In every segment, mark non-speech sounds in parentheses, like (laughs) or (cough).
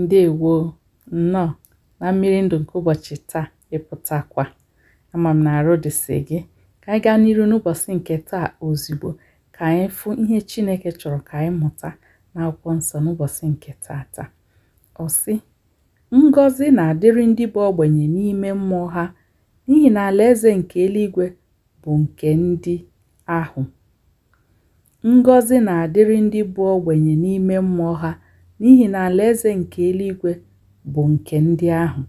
ǹdeèwo nnọọ na mmiri ndụ̀ nke ụbọ̀chị̀ taa ịpụtakwa ama m na arụ dịsị gị ka anyị gaa n'iru n'ụbọchị nke taa ozugbo ka anyị fụ ihe Chineke chọrọ ka anyị mụta n'akwụkwọ nsọ n'ụbọchị nke taa. ọ sị ngọzi na-adịrị ndị bụ ogbenye n'ime mmụọ ha n'ihi na alaeze nke eluigwe bụ nke ndị ahụ ngọzi na-adịrị ndị bụ ogbenye n'ime mmụọ ha n'ihi na alaeze nke eluigwe bụ nke ndị ahụ.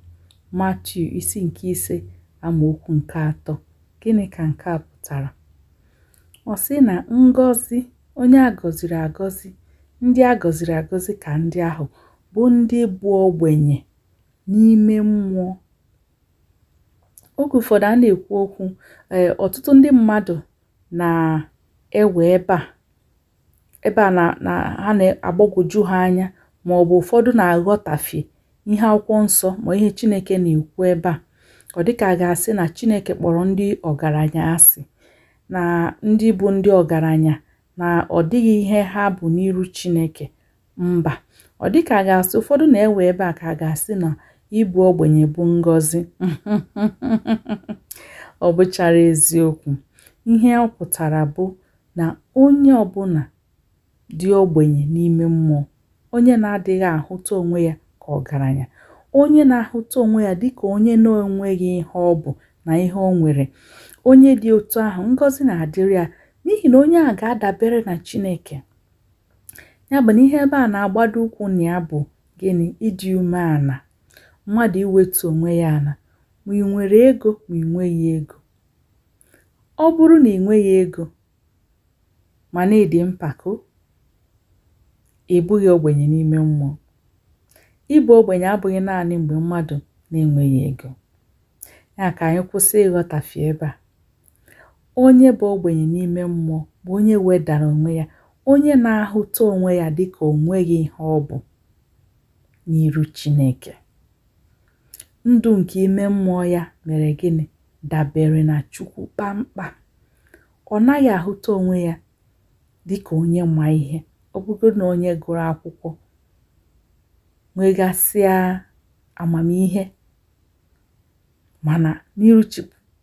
Matiu isi nke ise amaokwu nke atọ gịnị ka nke a pụtara ọ sị na ngọzi onye agọziri agọzi ndị a gọziri agọzi ka ndị ahụ bụ ndị bụ ogbenye n'ime mmụọ oge ụfọdụ a na-ekwu okwu e, ọtụtụ ndị mmadụ na-ewe a ebe a na ha na-agbagwoju ha anya ma ọ bụ ụfọdụ na-aghọtafie ihe akwụkwọ nsọ ma ihe Chineke na-ekwu ebe a ọ dịka a ga-asị na Chineke kpọrọ ndị ọgaranya asị na ndị bụ ndị ọgaranya na ọ dịghị ihe ha bụ n'iru Chineke mba ọ dịka a ga-asị ụfọdụ na-ewe ebe a ka a ga-asị na ịbụ ogbenye bụ ngọzi (laughs) ọ bụchara eziokwu ihe ọ pụtara bụ na onye ọbụla dị ogbenye n'ime mmụọ onye na-adịghị ahụta onwe ya ka ọgaranya onye na-ahụta onwe ya dịka onye na-enweghị ihe ọ bụ na ihe o nwere onye dị otu ahụ ngozi na-adịrị ya n'ihi na onye a ga-adabere na Chineke ya bụ na ihe ebe a na-agbado ụkwụ na ya bụ gịnị ịdị umeala mmadụ iwetu onwe ya ala ma ị nwere ego ma ị ego ọ bụrụ na ị nweghị ego ma na-edi mpako ị bụghị ogbenye n'ime mmụọ ịbụ ogbenye abụghị naanị mgbe mmadụ na-enweghị ego ya ka anyị kwụsị ịghọtafie ebe a onye bụ ogbenye n'ime mmụọ bụ onye wedara onwe ya onye na-ahụta onwe ya dịka onwe gị ihe ọ bụ n'iru Chineke ndụ nke ime mmụọ ya mere gịnị dabere na Chukwu kpamkpam ọ naghị ahụta onwe ya dị ka onye ma ihe ọ na onye gụrụ akwụkwọ nwegasịa amamihe mana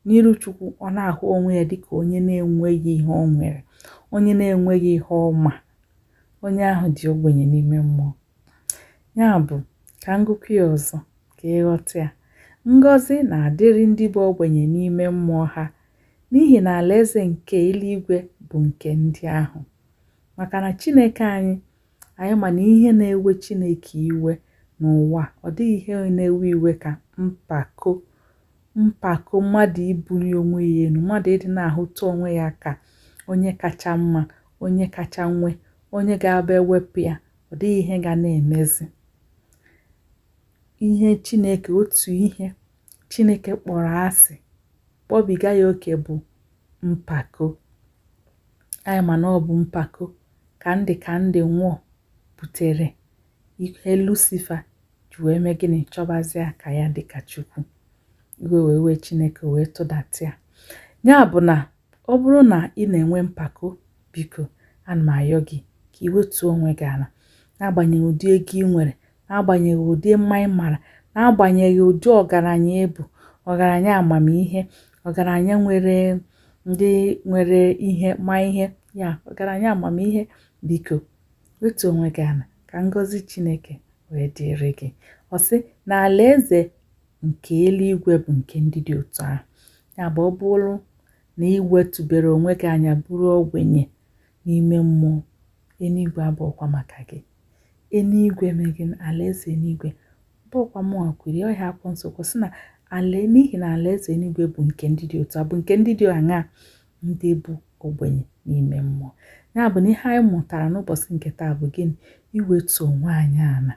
n'ịrụchukwu ọ na-ahụ onwe ya dịka onye na-enweghị ihe ọ nwere onye na-enweghị ihe ọma onye ahụ dị ogbenye n'ime mmụọ ya bụ ka ngụkọ ya ọzọ ka ịghọta ya ngọzi na-adịrị ndị bụ ogbenye n'ime mmụọ ha n'ihi na alaeze nke eluigwe bụ nke ndị ahụ maka na chineke anyị anyị ma na ihe na-ewe chineke iwe n'ụwa ọ dịghị ihe na-ewe iwe ka mpako mpako mmadụ ibuli onwe ya elu mmadụ ịdị na-ahụta onwe ya ka onye kacha mma onye kacha nwe onye ga-aba ewepụ ya ọ dịghị ihe ga na-emezi ihe chineke otu ihe chineke kpọrọ asị kpọbiga ya oke bụ mpako anyị ma na ọ bụ mpako Kandi Kandi Nwor butere ihe Lucifa ji wee mee gịnị chọbazịa ka ya dịka Chukwu iwe wee wee Chineke wee tụdatị ya ya bụ na ọ bụrụ na ị na-enwe mpako biko ana m ayọ gị ka ị wetuo onwe gị ala n'agbanyeghị ụdị ego ị nwere n'agbanyeghị ụdị mma ị mara n'agbanyeghị ụdị ọgaranya ịbụ ọgaranya amamihe ọgaranya nwere ndị nwere ihe ma ihe ya ọgaranya amamihe biko wetu onwe gị ana ka ngọzi chineke wee dịrị gị ọ sị na alaeze nke eluigwe bụ nke ndị dị otu ahụ ya bụ ọ bụrụ na iwetụbere onwe gị anya bụrụ ogbenye n'ime mmụọ eluigwe abụọkwa maka gị eluigwe megị alaeze eluigwe bụkwa mụnwa kwiri ọhịa akwọ nsokwu sị na ala n'ihi na alaeze eluigwe bụ nke ndị dị otu a bụ nke ndị dị aṅaa ndị bụ ogbenye n'ime mmụọ ya bụ na ihe anyị mụtara n'ụbọchị nke taa bụ gịnị iwetu onwe anyị ala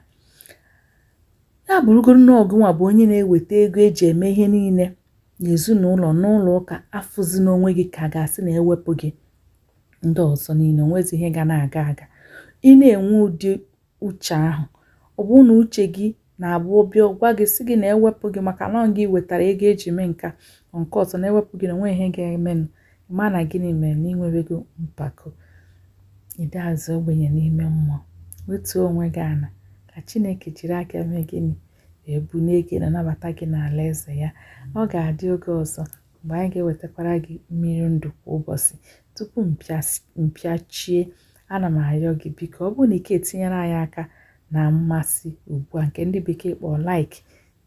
ya bụrụgoro na ọgụnwa bụ onye na-eweta ego eji eme ihe niile n'ezinụlọ n'ụlọ ụka afụzi n'onwe gị ka ga-asị na ewepụ gị ndị ọzọ niile onwezi ihe ga na-aga aga ị na-enwe ụdị uche ahụ ọ bụ na uche gị na-abụ obi gwa gị sị gị na ewepụ gị maka na gị wetara ego eji mee nka nke ọzọ na-ewepụ gị na onwe ihe ga-emenụ ma na gịnị mere na ịnwewego mpako ịdị azụ ogbenye n'ime mmụọ wetuo onwe gị ana ka chineke jiri aka mee gịnị wee bulie gị na nabata gị n'ala eze ya ọ ga-adị oge ọzọ mgbe anyị ga-ewetakwara gị mmiri ndụ kwa ụbọchị tupu mpịachie ana m arịọ gị biko ọ bụrụ na ike etinyere anyị aka na mmasị ugbu a nke ndị bekee kpọọ laik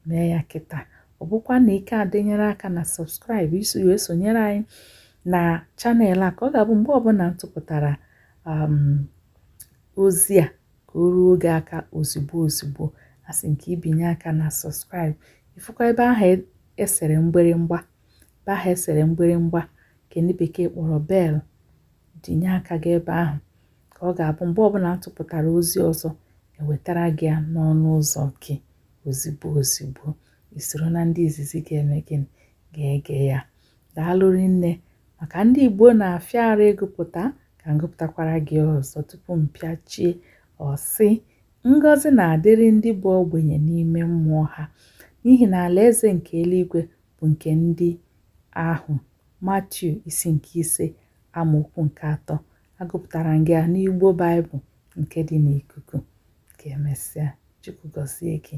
mee ya kịta ọ bụkwa na ike adịnyere aka na sọbskraịbụ iso wee sonyere anyị na chanel a ka ọ ga-abụ mgbe ọbụla m tụpụtara um, ozi a ka o ruo oge aka ozugbo ozugbo asị nke ibinye aka na sọskraịb ịfụkwa ebe ahụ esere e mgbịrịmgba ebe ahụ esere mgbịrịmgba kendị bekee kpọrọ bel dinye aka gị ebe ahụ ka ọ ga-abụ mgbe ọbụla m tụpụtara ozi ọzọ ewetara gị ya n'ọnụ ụzọ gị ozigbo ozigbo isoro na ndị izizi ga-eme gịnị ga-ege ya daalụ rinne maka ndị Igbo na-afịa ara ịgụpụta ka m gị ọzọ tupu mpịachie ọsị ngọzi na-adịrị ndị bụ ogbenye n'ime mmụọ ha n'ihi na alaeze nke eluigwe bụ nke ndị ahụ Matiu isi nke ise amaokwu nke atọ agụpụtara gị n'Igbo Baịbụl nke dị n'ikuku ka emesịa Chukwu gọzie gị